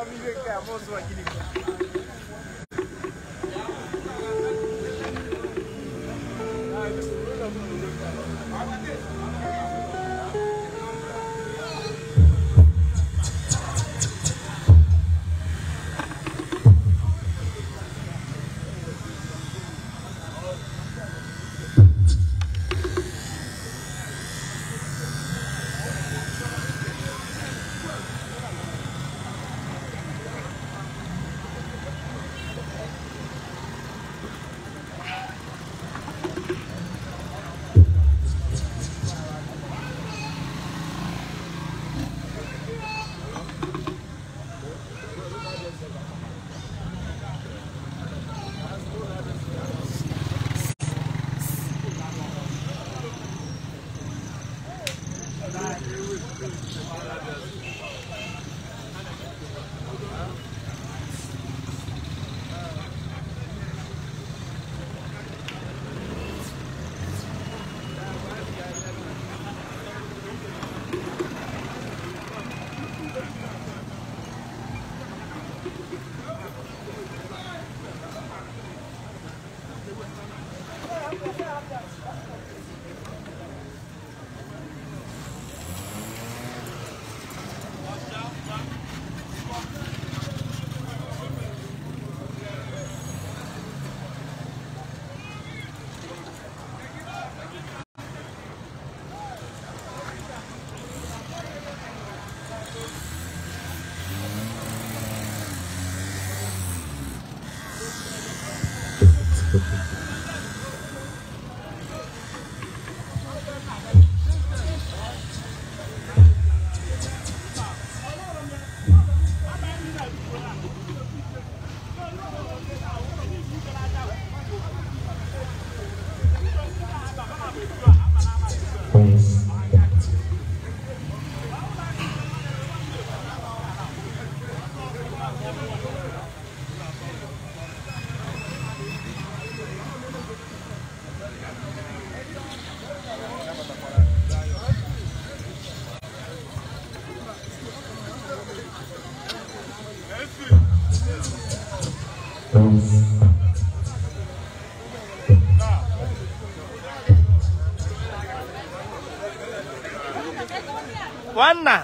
É que é a moça aqui. 完了，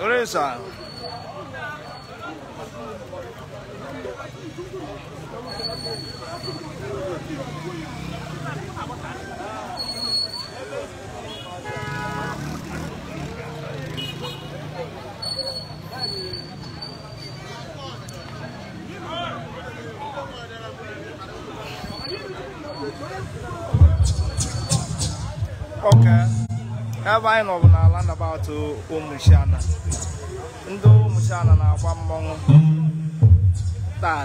我来说。ọka ebe anyị nọbụ n'ala nabatụ ụmụchiana ndị ụmụchiana na-agba mmọnwụ hmm. taa.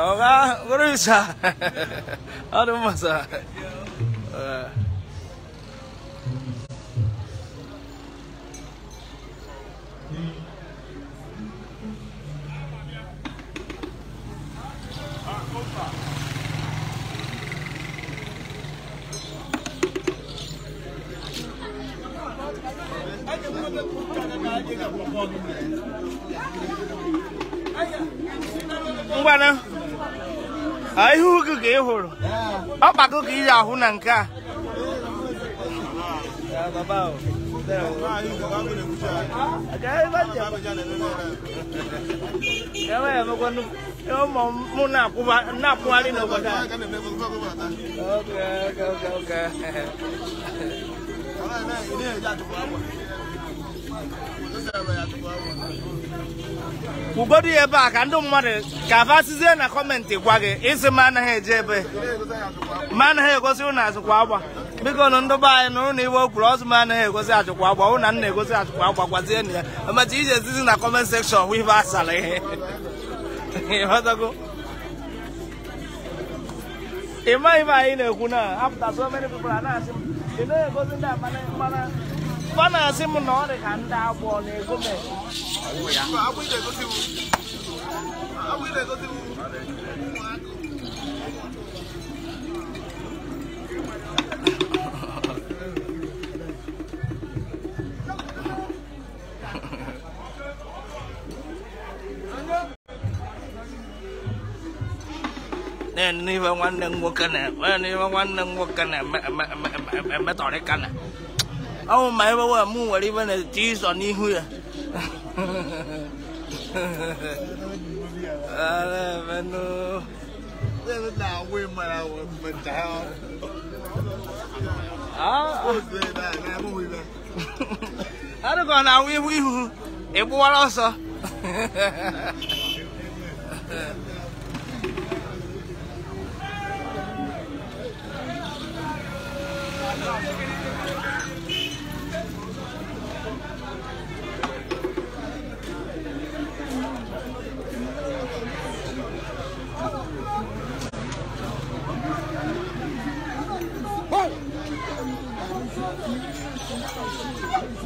Oga, berusaha. Aduh masa. Vamos lá, né? ihe ugwu ka ị hụrụ ọkpako ka ị ahụ na nke a ụmụ m na-akwụgharị n'obodo a ugodu ya ebe a ka ndị mmadụ ka abasizie na kọmentị gwa gị ịsị ma anaghị eje ebe ma anaghị egosi ụnụ azụkwa agba biko nụ ndị be anyị na ụnụ iwe okwuru ọzụ ma anaghị egosi ajụkwa agba ụnụ na na-egosi ajụkwa agba gwazie na ya emecha ije ezizi na kọment sekshọn hụ ife asara ihe ịmaghị m anyị na-ekwu na apụta so many people na-asị m ị na-egosi ndị amana À, để này một bana si m na ọ dị ka ndị abụọ na-ego m n'ihe nwanne m nwoke mẹ mẹ mẹ mẹ mẹ mẹ na-eme emetọrịka na ông mày bảo là mua đi bên này chỉ sợ đi huy à à bên nó bên nào quên mà nào mình chào à à nó còn nào quên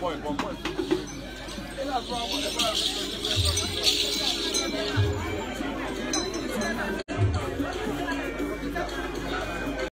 Point, one point.